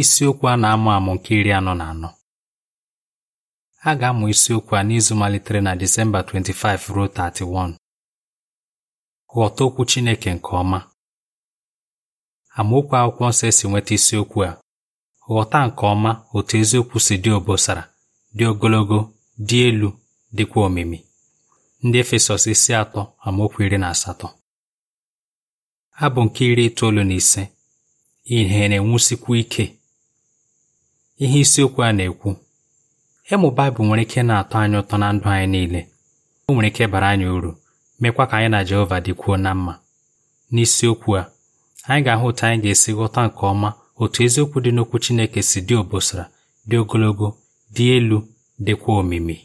isiokwu a na-amụ amụ nke iri anọ na anọ a ga-amụ isiokwu a n'izu malitere na Disemba 25 ruo 31 ghọta okwu Chineke nke ọma amaokwu akwụkwọ nsọ esi nweta isiokwu a ghọta nke ọma otu eziokwu si dị obosara dị ogologo dị elu dịkwa omimi ndị Efesọs isi atọ amaokwu iri na asatọ abụ nke iri itoolu na ise ihe na-enwusikwu ike ihe isiokwu a na-ekwu ịmụ Baịbụl nwere ike na-atọ anyị ụtọ na ndụ anyị niile o nwere ike bara anyị uru mekwa ka anyị na Jehova dịkwuo na mma n'isiokwu a anyị ga-ahụ otu anyị ga-esi ghọta nke ọma otu eziokwu dị n'okwu Chineke si dị obosara dị ogologo dị elu dịkwa omimi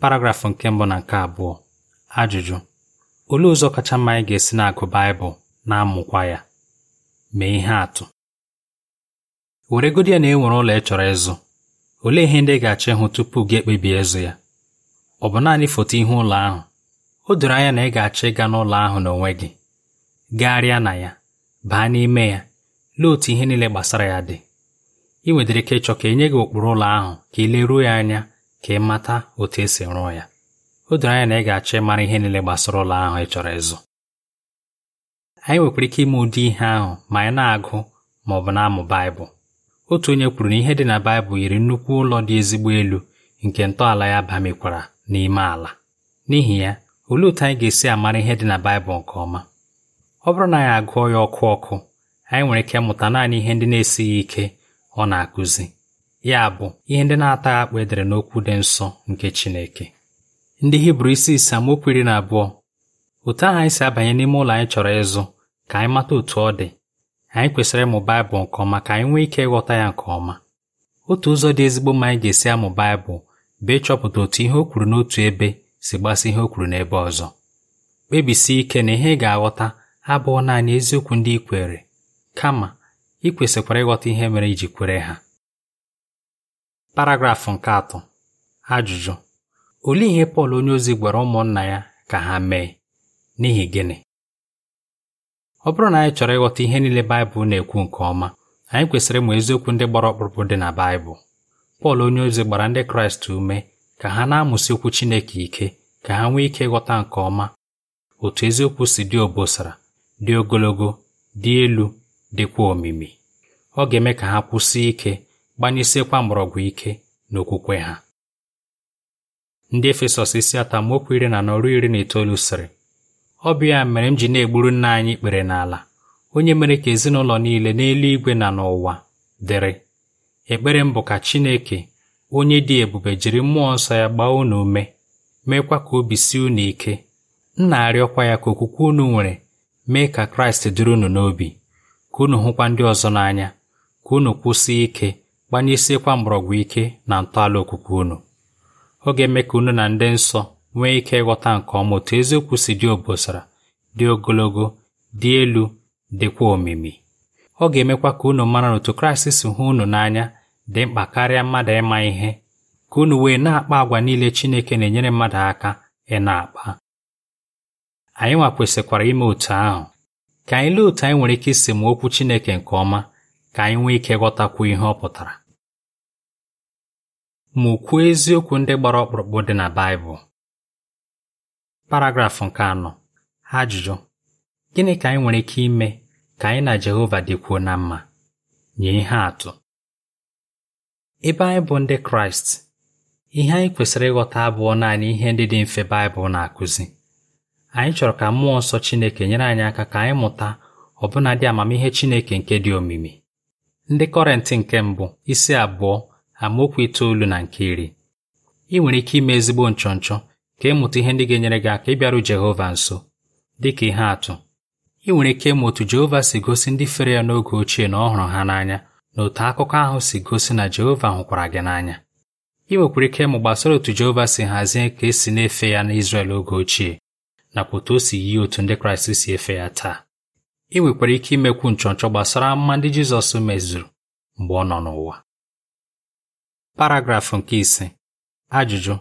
paragrafụ nke mbụ na nke abụọ ajụjụ olee ụzọ kacha mma anyị ga-esi na-agụ Baịbụl na-amụkwa ya mee ihe atụ weregodi ya na e ụlọ ị chọrọ ịzụ olee ihe ndị ga-achọ ịhụ tupu gị ekpebie ịzụ ya ọ bụ naanị foto ihe ụlọ ahụ o doro anya na ị ga-achọ ịga n'ụlọ ahụ n'onwe gị gagharịa na ya baa n'ime ya lee otu ihe niile gbasara ya dị ị nwedịrị ike ịchọ ka enye gị ụkpụrụ ụlọ ahụ ka ị leruo ya anya ka ị mata otu esi rụọ ya o doro anya na ị ga-achọ ịmara ihe niile gbasara ụlọ ahụ ị chọrọ ịzụ anyị nwekwara ike ime ụdị ihe ahụ ma anyị na-agụ ma ọ bụ na-amụ Baịbụl otu onye kwuru na ihe dị na Baịbụl yiri nnukwu ụlọ dị ezigbo elu nke ntọala ya bamikwara n'ime ala n'ihi ya olee otu anyị ga-esi amara ihe dị na Baịbụl nke ọma ọ bụrụ na anyị agụọ ya ọkụ ọkụ anyị nwere ike ịmụta naanị ihe ndị na-esighị ike ọ na-akụzi ya bụ ihe ndị na-ataghị akpụ edere n'okwu dị nsọ nke Chineke ndị Hibru isi ise amaokwu iri na abụọ otu ahụ anyị si abanye n'ime ụlọ anyị chọrọ ịzụ ka anyị mata otu ọ dị anyị kwesịrị ịmụ Baịbụl nke ọma ka anyị nwee ike ịghọta ya nke ọma otu ụzọ dị ezigbo mma anyị ga-esi amụ Baịbụl bụ ịchọpụta otu ihe o kwuru n'otu ebe si gbasa ihe o kwuru n'ebe ọzọ kpebisie ike na ihe ị ga-aghọta abụọ naanị eziokwu ndị i kwere kama ị kwesịkwara ịghọta ihe mere iji kwere ha paragrafụ nke atọ ajụjụ olee ihe Pọl onyeozi gwara ụmụnna ya ka ha mee n'ihi gịnị ọ bụrụ na anyị chọrọ ịghọta ihe niile Baịbụl na-ekwu nke ọma anyị kwesịrị ịmụ eziokwu ndị gbara ọkpụrụkpụ dị na Baịbụl Pọl onyeozi gbara ndị Kraịst ume ka ha na-amụsị okwu Chineke ike ka ha nwee ike ịghọta nke ọma otu eziokwu si dị obosara dị ogologo dị elu dịkwa omimi ọ ga-eme ka ha kwụsị ike gbanyesiekwa mgbọrọgwụ ike n'okwukwe ha ndị Efesọs isi atamokwu iri na anọ iri na itoolu sịrị ọ bụ ya mere m ji na-egburu nna anyị kpere n'ala onye mere ka ezinụlọ niile n'eluigwe na n'ụwa dịrị ekpere m bụ ka Chineke onye dị ebube jiri mmụọ nsọ ya gbaa unu ume meekwa ka obi si unu ike m na-arịọkwa ya ka okwukwe unu nwere mee ka Kraịst dịrị unu n'obi ka unu hụkwa ndị ọzọ n'anya ka unu kwụsị ike gbanyesiekwa mgbọrọgwụ ike na ntọala okwukwe unu ọ ga-eme ka unu na ndị nsọ nwee ike ịghọta nke ọma otu eziokwu si dị obosara dị ogologo dị elu dịkwa omimi ọ ga-emekwa ka unu mara na otu Kraịst si hụ unu n'anya dị mkpa karịa mmadụ ịma ihe ka unu wee na-akpa agwa niile Chineke na-enyere mmadụ aka ị na-akpa anyị nwa kwesịkwara ime otu ahụ ka anyị lee otu anyị nwere ike isi ma okwu Chineke nke ọma ka anyị nwee ike ghọtakwu ihe ọ pụtara mụkwuo eziokwu ndị gbara ọkpụrụkpụ dị na Baịbụl paragrafụ nke anọ ajụjụ gịnị ka anyị nwere ike ime ka anyị na Jehova dịkwuo na mma nye ihe atụ ebe anyị bụ ndị Kraịst ihe anyị kwesịrị ịghọta abụọ naanị ihe ndị dị mfe Baịbụl na-akụzi anyị chọrọ ka mmụọ nsọ Chineke nyere anyị aka ka anyị mụta ọbụnadị amamihe Chineke nke dị omimi ndị Kọrentị nke mbụ isi abụọ amaokwu itoolu na nke iri ị nwere ike ime ezigbo nchọnchọ ka ịmụta e ihe ndị ga-enyere gị aka ịbịaru Jehova nso dị ka ihe atụ ị nwere ike ịmụ otu Jehova si gosi ndị fere ya n'oge ochie na ọ hụrụ ha n'anya na otu akụkọ ahụ si gosi na Jehova hụkwara gị n'anya ị nwekwara ike ịmụ gbasara otu Jehova si hazie ka esi na-efe ya n'Izrel oge ochie nakwa otu o si yi otu ndị Kraịst si efe ya taa ị nwekwara ike imekwu nchọnchọ gbasara mma ndị Jizọs mezuru mgbe ọ nọ n'ụwa paragrafụ nke ise ajụjụ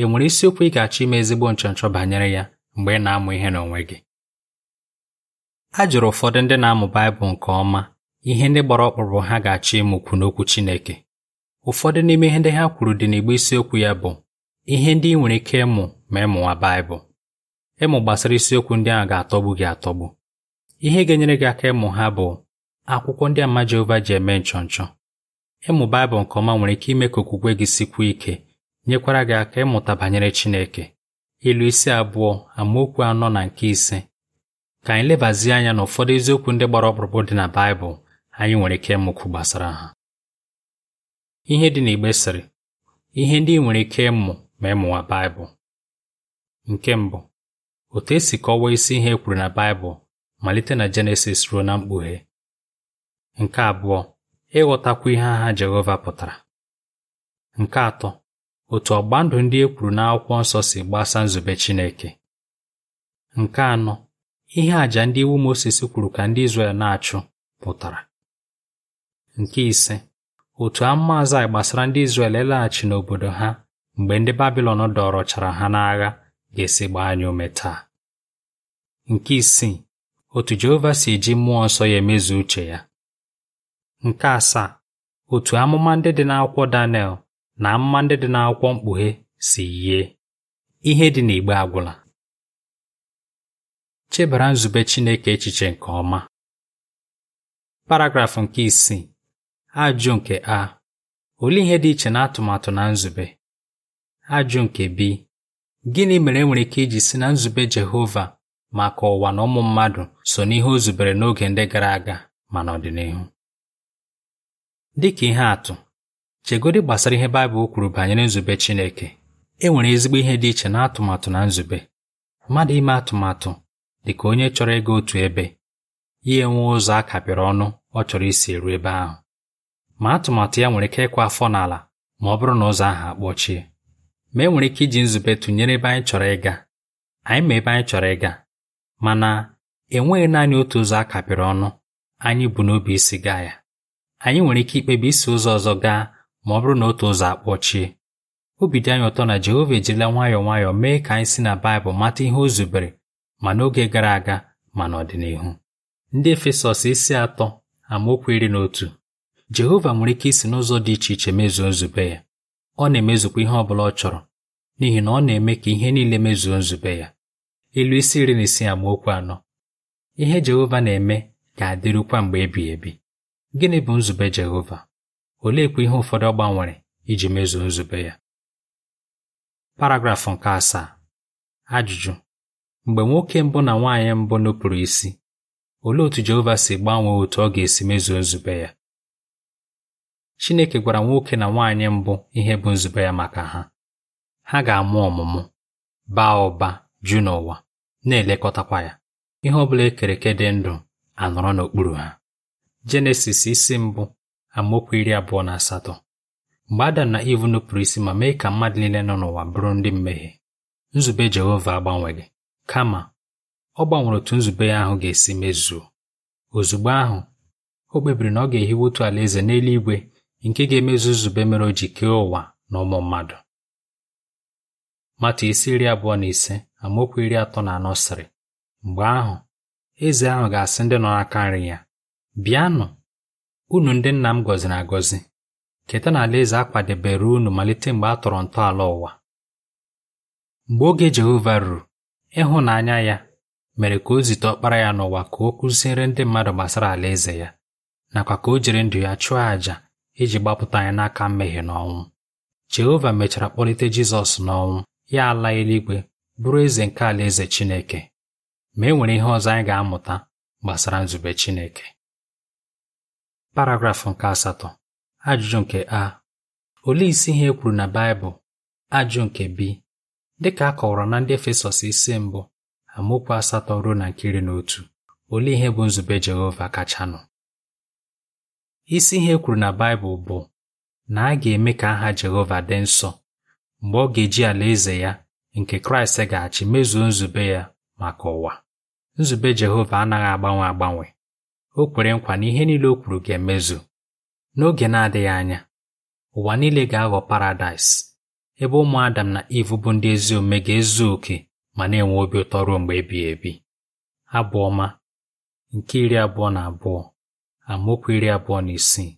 ị nwere isiokwu ị ga-achọ ime ezigbo nchọnchọ banyere ya mgbe ị na-amụ ihe n'onwe gị a jụrụ ụfọdụ ndị na-amụ Baịbụl nke ọma ihe ndị gbara ọkpụrụ ha ga-achọ ịmụkwu n'okwu Chineke ụfọdụ n'ime ihe ndị ha kwuru dị n'igbe isiokwu ya bụ ihe ndị ị nwere ike ịmụ ma ịmụwa Baịbụl ịmụ gbasara isiokwu ndị ahụ ga-atọgbu gị atọgbu ihe ga-enyere gị aka ịmụ ha bụ akwụkwọ ndị ama Jehova ji eme nchọnchọ ịmụ Baịbụl nke ọma nwere ike ime ka okwukwe gị sikwuo ike nyekwara gị aka ịmụta banyere Chineke ilu isi abụọ amaokwu anọ na nke ise ka anyị lebazie anya na ụfọdụ eziokwu ndị gbara ọkpụrụkpụ dị na Baịbụl anyị nwere ike ịmụkwu gbasara ha ihe dị n'igbe sịrị ihe ndị ị nwere ike ịmụ ma ịmụwa Baịbụl nke mbụ otu esi kọwaa isi ihe e kwuru na Baịbụl malite na Jenesis ruo na mkpughe nke abụọ ịghọtakwu ihe agha Jehova pụtara nke atọ otu ọgba ndụ ndị e kwuru n'akwụkwọ nsọ si gbasa nzube Chineke nke anọ ihe àjà ndị iwu Mozis kwuru ka ndị Izrel na-achụ pụtara nke ise otu amaazụ anyị gbasara ndị Izrel ịlaghachi n'obodo ha mgbe ndị Babilọn dọrọchara ha n'agha ga-esi gbaa anyị ume taa nke isii otu Jehova si eji mmụọ nsọ ya emezu uche ya nke asaa otu amụma ndị dị n'akwụkwọ Daniel na mma ndị dị n'akwụkwọ mkpughe si yie ihe dị n'igbe agwụla chebara nzube Chineke echiche nke ọma paragrafụ nke isii ajụ nke a olee ihe dị iche na atụmatụ na nzube ajụ nke b gịnị mere enwere ike iji si na nzube Jehova maka ụwa na ụmụ mmadụ so n'ihe o zubere n'oge ndị gara aga ma n'ọdịnihu Dị ka ihe atụ chegodị gbasara ihe Baịbụl kwuru banyere nzube Chineke e nwere ezigbo ihe dị iche na atụmatụ na nzube mmadụ ime atụmatụ dị ka onye chọrọ ịga otu ebe ya enwe ụzọ a kapịrị ọnụ ọ chọrọ isi eru ebe ahụ ma atụmatụ ya nwere ike ịkwa afọ n'ala ma ọ bụrụ na ụzọ ahụ akpọchie ma e nwere ike iji nzube tụnyere ebe anyị chọrọ ịga anyị ma ebe anyị chọrọ ịga mana enweghị naanị otu ụzọ a kapịrị ọnụ anyị bụ n'obi isi gaa ya anyị nwere ike ikpebi isi ụzọ ọzọ gaa ma ọ bụrụ na otu ụzọ akpọchie obi dị anyị ụtọ na Jehova ejirila nwayọọ nwayọọ mee ka anyị si na Baịbụl mata ihe o zubere ma n'oge gara aga ma n'ọdịnihu ndị Efesọs isi atọ amaokwu iri na otu Jehova nwere ike isi n'ụzọ dị iche iche mezuo nzube ya ọ na-emezukwa ihe ọ bụla ọ chọrọ n'ihi na ọ na-eme ka ihe niile mezuo nzube ya ilu isi iri na isi amaokwu anọ ihe Jehova na-eme ga-adịrịkwa mgbe ebighị ebi gịnị bụ nzube Jehova oleekwa ihe ụfọdụ ọ gbanwere iji mezuo nzube ya paragrafụ nke asaa ajụjụ mgbe nwoke mbụ na nwaanyị mbụ nupụrụ isi olee otu Jehova si gbanwee otu ọ ga-esi mezuo nzube ya Chineke gwara nwoke na nwaanyị mbụ ihe bụ nzube ya maka ha ha ga-amụ ọmụmụ baa ụba ju n'ụwa na-elekọtakwa ya ihe ọ bụla ekere dị ndụ anọrọ n'okpuru ha Jenesis isi mbụ amaokwu iri abụọ na asatọ mgbe Adam na Iv nupụrụ isi ma mee ka mmadụ niile nọ n'ụwa bụrụ ndị mmehie nzube Jehova agbanweghị kama ọ gbanwere otu nzube ya ahụ ga-esi mezuo ozugbo ahụ o kpebiri na ọ ga-ehiwe otu alaeze n'eluigwe nke ga-emezu nzube mere o ji kee ụwa na ụmụ mmadụ mata isi iri abụọ na ise amaokwu iri atọ na anọ sịrị mgbe ahụ eze ahụ ga-asị ndị nọ n'aka nri ya bịanụ unu ndị nna m gọziri agọzi keta na alaeze a kwadebere unu malite mgbe a tọrọ ntọala ụwa mgbe oge Jehova ruru ịhụnanya ya mere ka o zite ọkpara ya n'ụwa ka o kụziere ndị mmadụ gbasara alaeze ya nakwa ka o jiri ndụ ya chụọ àjà iji gbapụta anyị n'aka mmehie n'ọnwụ Jehova mechara kpọlite Jizọs n'ọnwụ ya ala eluigwe bụrụ eze nke alaeze Chineke ma e nwere ihe ọzọ anyị ga-amụta gbasara nzube Chineke paragrafụ nke asatọ ajụjụ nke a olee isi ihe e kwuru na Baịbụl ajụ nke b dịka a kọwara na ndị Efesọs isi mbụ amaokwu asatọ ruo na nke iri na otu olee ihe bụ nzube Jehova kachanụ isi ihe e kwuru na Baịbụl bụ na a ga-eme ka aha Jehova dị nsọ mgbe ọ ga-eji alaeze ya nke Kraịst ga-achị mezuo nzube ya maka ụwa nzube Jehova anaghị agbanwe agbanwe o kwere nkwa na ihe niile o kwuru ga-emezu n'oge na-adịghị anya ụwa niile ga-aghọ paradaịs ebe ụmụ Adam na Iv bụ ndị ezi omume ga-ezu oke ma na-enwe obi ụtọ ruo mgbe ebighị ebi Abụọma, nke iri abụọ na abụọ amaokwu iri abụọ na isii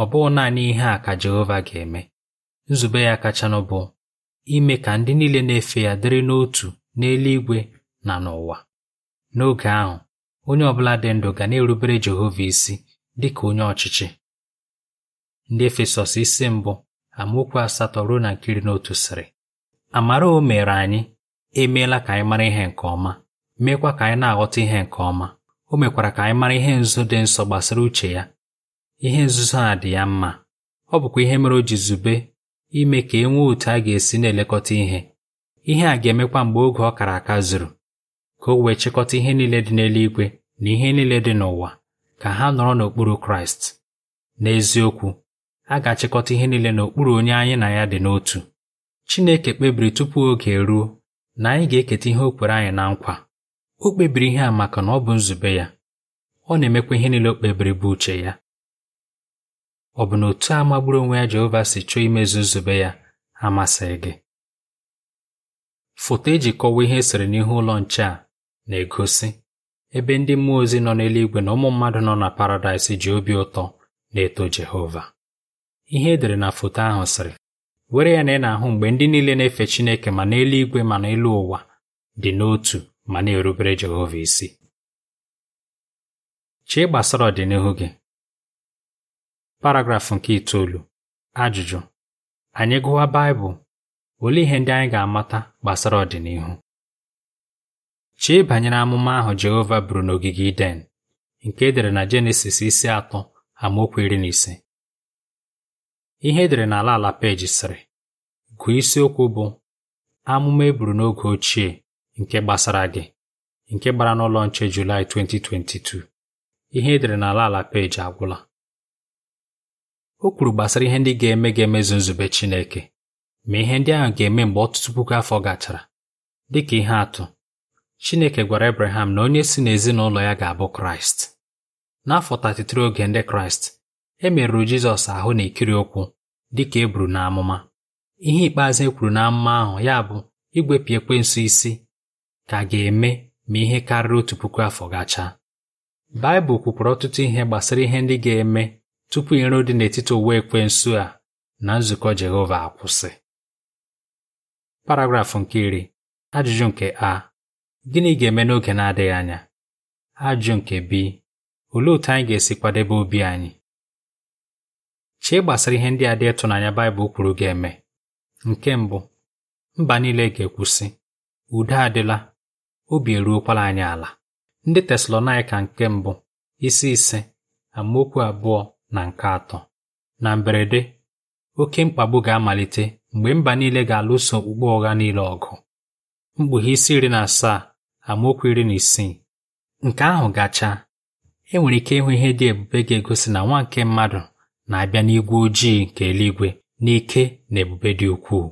ọ bụghị naanị ihe a ka Jehova ga-eme nzube ya kachanụ bụ ime ka ndị niile na-efe ya dịrị n'otu n'eluigwe na n'ụwa n'oge ahụ onye ọbụla dị ndụ ga na-erubere Jehova isi dị ka onye ọchịchị ndị Efesọs isi mbụ amaokwu asatọ ruo na nkiri n'otu sịrị amara o mere anyị emeela ka anyị mara ihe nke ọma meekwa ka anyị na-aghọta ihe nke ọma o mekwara ka anyị mara ihe nzuzo dị nsọ gbasara uche ya ihe nzuzo a dị ya mma ọ bụkwa ihe mere o ji zube ime ka e nwee otu a ga-esi na-elekọta ihe ihe a ga-emekwa mgbe oge ọ kara aka zuru ka o wee chịkọta ihe niile dị n'eluigwe na ihe niile dị n'ụwa ka ha nọrọ n'okpuru Kraịst n'eziokwu a ga-achịkọta ihe niile n'okpuru onye anyị na ya dị n'otu Chineke kpebiri tupu oge eruo na anyị ga-eketa ihe o kwere anyị na nkwa o kpebiri ihe a maka na ọ bụ nzube ya ọ na-emekwa ihe niile o kpebiri bụ uche ya ọ bụ na otu a magburu onwe ya Jehova si chọọ imezu nzube ya amasịghị gị foto eji kọwaa ihe esere n'ihu ụlọ nche a na-egosi ebe ndị mmụọ ozi nọ n'eluigwe na ụmụ mmadụ nọ na paradaịs ji obi ụtọ na-eto Jehova ihe edere na foto ahụ sịrị were ya na ị na-ahụ mgbe ndị niile na-efe Chineke ma n'eluigwe ma n'elu ụwa dị n'otu ma na-erubere Jehova isi chee gbasara ọdịnihu gị paragrafụ nke itoolu ajụjụ anyị gụwa Baịbụl olee ihe ndị anyị ga-amata gbasara ọdịnihu Chee banyere amụma ahụ Jehova buru n'ogige Iden nke edere na Jenesis isi atọ amaokwu iri na ise ihe edere n'ala ala peji sịrị gụọ isiokwu bụ amụma e buru n'oge ochie nke gbasara gị nke gbara n'ụlọ nche Julaị 2022 ihe edere n'ala ala peji agwụla o kwuru gbasara ihe ndị ga-eme ga-emezu nzube Chineke ma ihe ndị ahụ ga-eme mgbe ọtụtụ puku afọ gachara dị ka ihe atụ Chineke gwara Abraham na onye si n'ezinụlọ ya ga-abụ Kraịst. N'afọ 33 oge ndị Kraịst, e merụrụ Jizọs ahụ na ekiri ụkwụ dị ka e buru n'amụma. Ihe ikpeazụ e kwuru n'amụma ahụ ya bụ ekwe nsụ isi ka ga-eme ma ihe karịrị otu puku afọ gachaa. Baịbụl kwupụrụ ọtụtụ ihe gbasara ihe ndị ga-eme tupu iro dị n'etiti ụwa ekwensụ a na nzukọ Jehova akwụsị. Paragrafụ nke iri, ajụjụ nke a Gịnị ga-eme n'oge na-adịghị anya? Ajụ nke bi, olee otú anyị ga-esi kwadebe obi anyị? Chee gbasara ihe ndị a dị ịtụnanya Baịbụl kwuru ga-eme. Nke mbụ, mba niile ga-ekwusị, udo adịla, obi eruokwala anyị ala. Ndị Tesalonaịka nke mbụ, isi ise, amaokwu abụọ na nke atọ. Na mberede, oke mkpagbu ga-amalite mgbe mba niile ga-alụso okpukpe ụgha niile ọgụ. Mkpughe isi iri na asaa amaokwu iri na isii nke ahụ gachaa e nwere ike ịhụ ihe dị ebube ga-egosi na nwa nke mmadụ na-abịa n'igwe ojii nke eluigwe n'ike na ebube dị ukwuu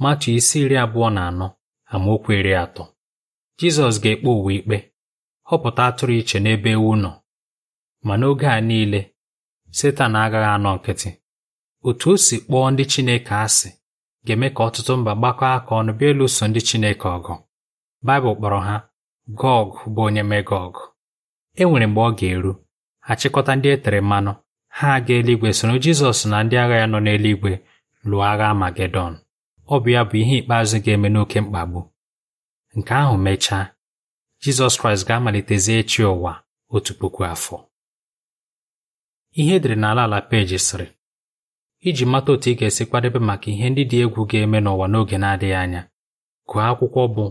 matu isi iri abụọ na anọ amaokwu iri atọ Jizọs ga-ekpe ụwa ikpe họpụta atụrụ iche n'ebe ewu nọ ma n'oge a niile Setan agaghị anọ nkịtị otu o si kpọọ ndị Chineke asị ga-eme ka ọtụtụ mba gbakọọ aka ọnụ bịa ịlụso ndị Chineke ọgụ Baịbụl kpọrọ ha Gog bụ onye Megog e nwere mgbe ọ ga-eru ha chịkọta ndị e tere mmanụ ha aga eluigwe soro Jizọs na ndị agha ya nọ n'eluigwe lụọ agha Amagedọn ọ bụ ya bụ ihe ikpeazụ ga-eme n'oké mkpagbu nke ahụ mechaa Jizọs Kraịst ga-amalitezi chi ụwa otu puku afọ ihe edere n'ala ala peji sịrị iji mata otu ị ga-esi kwadebe maka ihe ndị dị egwu ga-eme n'ụwa n'oge na-adịghị anya gụọ akwụkwọ bụ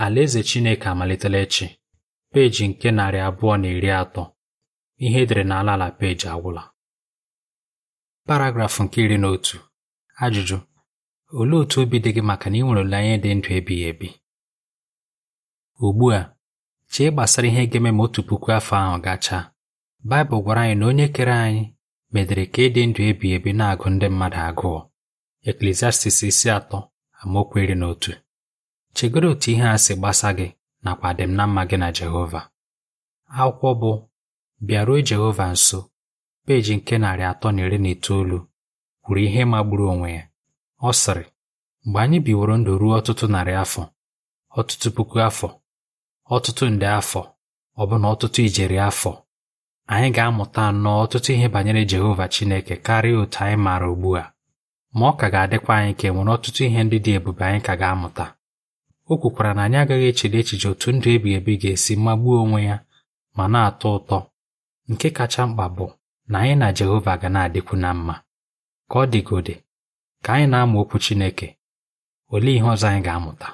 Alaeze Chineke amalitela echi peji nke narị abụọ na iri atọ ihe edere n'ala ala peji agwụla paragrafụ nke iri na otu ajụjụ olee otu obi dị gị maka na ị nwere olileanya dị ndụ ebighị ebi ugbu a chee gbasara ihe ga-eme ma otu puku afọ ahụ gachaa Baịbụl gwara anyị na onye kere anyị medere ka ịdị ndụ ebighị ebi na-agụ ndị mmadụ agụụ Eklesiastis isi atọ amaokwu iri na otu Chegoro otu ihe a si gbasa gị nakwa adịm na mma gị na Jehova akwụkwọ bụ bịaruo Jehova nso peji nke narị atọ na iri na itoolu kwuru ihe magburu onwe ya ọ sịrị mgbe anyị biworo ndụ ruo ọtụtụ narị afọ ọtụtụ puku afọ ọtụtụ nde afọ ọbụna ọtụtụ ijeri afọ anyị ga-amụta nnọọ ọtụtụ ihe banyere Jehova Chineke karịa otu anyị maara ugbu a ma ọ ka ga-adịkwa anyị ka e nwere ọtụtụ ihe ndị dị ebube anyị ka ga-amụta o kwukwara na anyị agaghị echere echiche otu ndụ ebighị ebi ga-esi magbuo onwe ya ma na-atọ ụtọ nke kacha mkpa bụ na anyị na Jehova ga na-adịkwu na mma ka ọ dịgode ka anyị na-amụ okwu Chineke olee ihe ọzọ anyị ga-amụta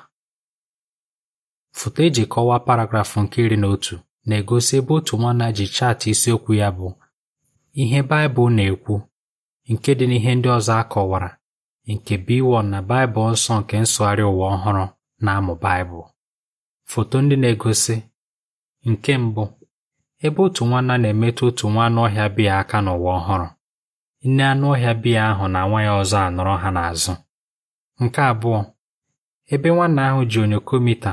foto eji kọwaa paragrafụ nke iri na otu na-egosi ebe otu nwanna ji chaatị isiokwu ya bụ ihe Baịbụl na-ekwu nke dị n'ihe ndị ọzọ a kọwara nke B1 na Baịbụl nsọ nke nsụgharị ụwa ọhụrụ na-amụ Baịbụl foto ndị na-egosi nke mbụ ebe otu nwanna na-emetụ otu nwa anụ ọhịa biya aka n'ụwa ọhụrụ nne anụ ọhịa biya ahụ na nwa ya ọzọ anọrọ ha n'azụ nke abụọ ebe nwanna ahụ ji mita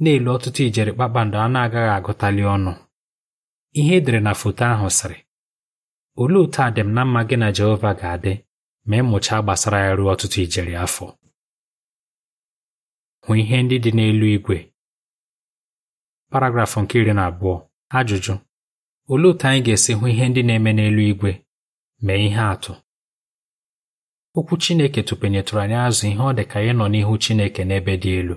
na elu ọtụtụ ijeri kpakpando a na-agaghị agụtali ọnụ ihe edere na foto ahụ sịrị olee otu adịm na mma gị na Jehova ga-adị ma ịmụchaa gbasara ya ruo ọtụtụ ijeri afọ hụ ihe ndị dị n'elu igwe paragrafụ nke iri na abụọ ajụjụ olee otu anyị ga-esi hụ ihe ndị na-eme n'elu igwe mee ihe atụ okwu Chineke tụpenyetụrụ anyị azụ ihe ọ dị ka nọ n'ihu Chineke n'ebe dị elu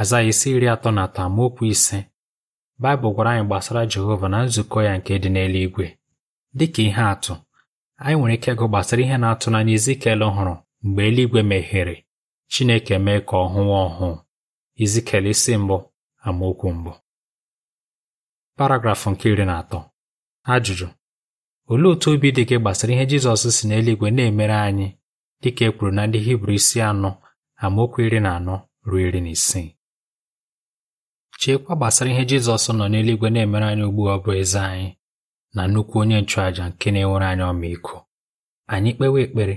aza isi iri atọ na atọ amaokwu ise Baịbụl gwara anyị gbasara Jehova na nzukọ ya nke dị n'eluigwe dịka ihe atụ anyị nwere ike ịgụ gbasara ihe na-atụ n'anya Izikiel hụrụ mgbe eluigwe meghere Chineke mee ka ọ hụwa ọhụụ Izikele isi mbụ amaokwu mbụ paragrafụ nke iri na atọ ajụjụ olee otu obi dị gị gbasara ihe Jizọs si n'eluigwe na-emere anyị dịka e kwuru na ndị Hibru isi anọ amaokwu iri na anọ ruo iri na isii cheekwa gbasara ihe Jizọs nọ n'eluigwe na-emere anyị ugbu ọ bụ eze anyị na nnukwu onye nchụàjà nke na-enwere anyị ọmịiko anyị kpewa ekpere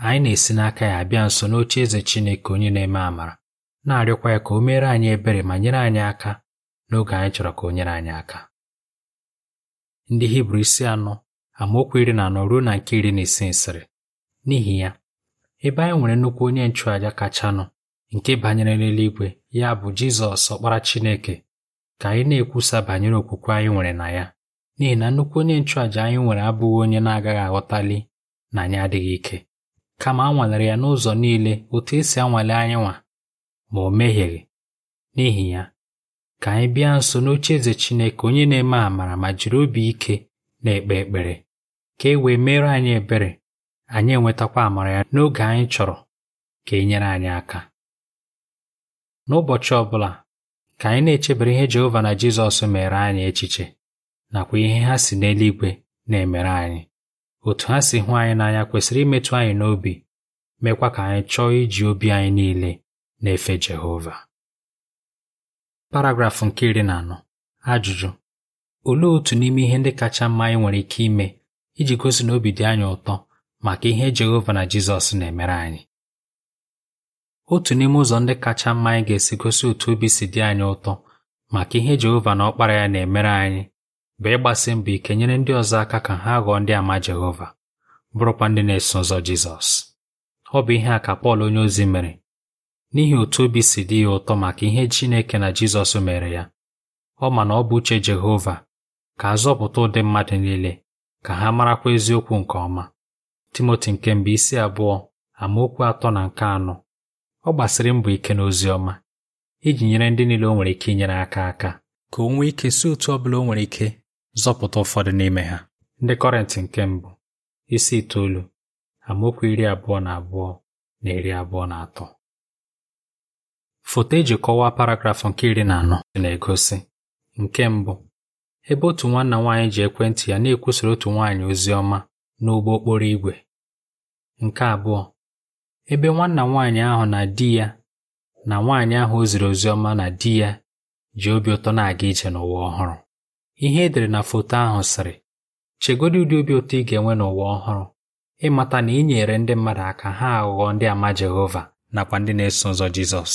anyị na-esi n'aka ya bịa nso n'oche eze Chineke onye na-eme amara na-arịọkwa ya ka o meere anyị ebere ma nyere anyị aka n'oge anyị chọrọ ka o nyere anyị aka ndị Hibru isi anọ amaokwu iri na anọ ruo na nke iri na isi nsịrị n'ihi ya ebe anyị nwere nnukwu onye nchụàja kachanụ nke banyere n'eluigwe ya bụ Jizọs ọkpara Chineke ka anyị na-ekwusa banyere okwukwe anyị nwere na ya n'ihi na nnukwu onye nchụàja anyị nwere abụghị onye na-agaghị aghọtali na anyị adịghị ike kama a ya n'ụzọ niile otu esi anwale anyị ma o mehieghị n'ihi ya ka anyị bịa nso n'oche eze Chineke onye na-eme amara ma jiri obi ike na-ekpe ekpere ka e wee mere anyị ebere anyị enwetakwa amara ya n'oge anyị chọrọ ka e nyere anyị aka n'ụbọchị ọbụla ka anyị na-echebere ihe Jehova na Jizọs mere anyị echiche nakwa ihe ha si n'eluigwe na-emere anyị otu ha si hụ anyị n'anya kwesịrị imetụ anyị n'obi mekwa ka anyị chọọ iji obi anyị niile na-efe Jehova paragrafụ nke iri na anọ ajụjụ olee otu n'ime ihe ndị kacha mma anyị nwere ike ime iji gosi na obi dị anyị ụtọ maka ihe Jehova na Jizọs na-emere anyị otu n'ime ụzọ ndị kacha mma anyị ga-esi gosi otu obi si dị anyị ụtọ maka ihe Jehova na ọkpara ya na-emere anyị bụ ịgbasi mbọ ike nyere ndị ọzọ aka ka ha ghọọ ndị ama Jehova bụrụkwa ndị na-eso ụzọ Jizọs ọ bụ ihe a ka Pọl onyeozi mere n'ihi otu obi si dị ya ụtọ maka ihe Chineke na Jizọs mere ya ọ ma na ọ bụ uche Jehova ka a zọpụta ụdị mmadụ niile ka ha marakwa eziokwu nke ọma Timoti nke mbụ isi abụọ amaokwu atọ na nke anọ ọ gbasiri mbọ ike n'ozi ọma iji nyere ndị niile o nwere ike inyere aka aka ka o nwee ike si otu ọ bụla o nwere ike zọpụta ụfọdụ n'ime ha ndị Kọrịntị nke mbụ isi itoolu amaokwu iri abụọ na abụọ na iri abụọ na atọ foto eji kọwaa paragrafụ nke iri na anọ na-egosi nke mbụ ebe otu nwanna nwaanyị ji ekwentị ya na-ekwusara otu nwaanyị ozi ọma n'ụgbọ okporo ígwè; nke abụọ ebe nwanna nwaanyị ahụ na di ya na nwaanyị ahụ o ziri ozi ọma na di ya ji obi ụtọ na-aga ije n'ụwa ọhụrụ ihe edere na foto ahụ sịrị chegodi ụdị obi ụtọ ị ga-enwe n'ụwa ọhụrụ ịmata na ị nyere ndị mmadụ aka ha aghụghọ ndị ama Jehova nakwa ndị na-eso ụzọ Jizọs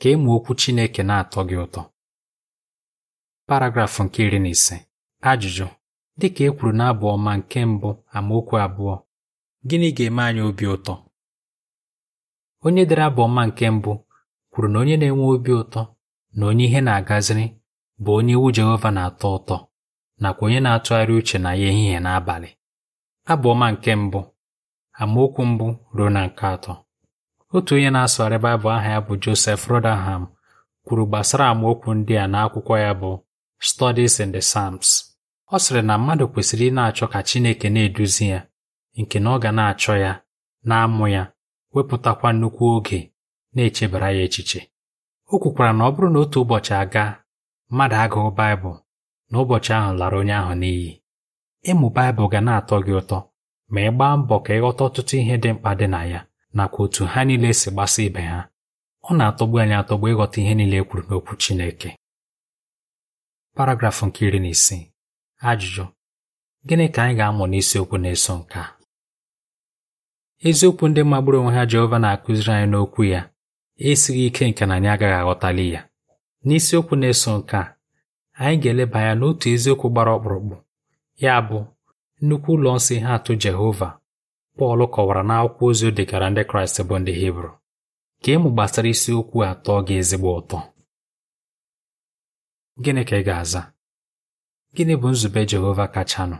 ka ịmụ e okwu Chineke na-atọ gị ụtọ paragrafụ nke iri na ise ajụjụ dịka e kwuru na ọma nke mbụ amaokwu abụọ gịnị ga-eme anyị obi ụtọ onye dere abụ ọma nke mbụ kwuru na onye na-enwe obi ụtọ na onye ihe na-agaziri bụ onye iwu Jehova na-atọ ụtọ nakwa onye na-atụgharị uche na ya ehihie n'abalị. abalị ọma nke mbụ amaokwu mbụ ruo na nke atọ otu onye na-asụgharị Baịbụl aha ya bụ Josef Rotherham kwuru gbasara amaokwu ndị a n'akwụkwọ ya bụ Studies in the Psalms ọ sịrị na mmadụ kwesịrị ị na-achọ ka Chineke na-eduzi ya nke na ọ ga na-achọ ya na-amụ ya wepụtakwa nnukwu oge na-echebara ya echiche o kwukwara na ọ bụrụ na otu ụbọchị aga mmadụ agụụ Baịbụl n'ụbọchị ahụ lara onye ahụ n'iyi ịmụ Baịbụl ga na-atọ gị ụtọ ma ị gbaa mbọ ka ịghọta ọtụtụ ihe dị mkpa dị na ya nakwa otu ha niile si gbasa ibe ha ọ na-atọgbu anyị atọgbu ịghọta ihe niile e kwuru n'okwu Chineke paragrafụ nke iri na isii ajụjụ gịnị ka anyị ga-amụ n'isiokwu na-eso nke a eziokwu ndị magburu onwe ha Jehova na-akụziri anyị n'okwu ya esighị ike nke na anyị agaghị aghọtali ya N'isiokwu na-eso nke a, anyị ga-eleba anya n'otu eziokwu gbara ọkpụrụkpụ, ya bụ nnukwu ụlọ nsọ ihe atụ Jehova Pọl kọwara n'akwụkwọ ozi o degara ndị Kraịst bụ ndị Hibru. Ka ịmụ gbasara isiokwu atọ gị ezigbo ụtọ. Gịnị ka ị ga-aza? Gịnị bụ nzube Jehova kachanụ?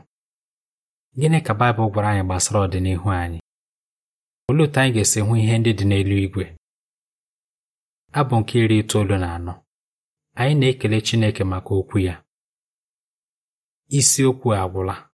Gịnị ka Baịbụl gwara anyị gbasara ọdịnihu anyị? Olee otu anyị ga-esi hụ ihe ndị dị n'elu igwe? Abụ nke iri itoolu na anọ anyị na-ekele Chineke maka okwu ya Isi okwu agwụla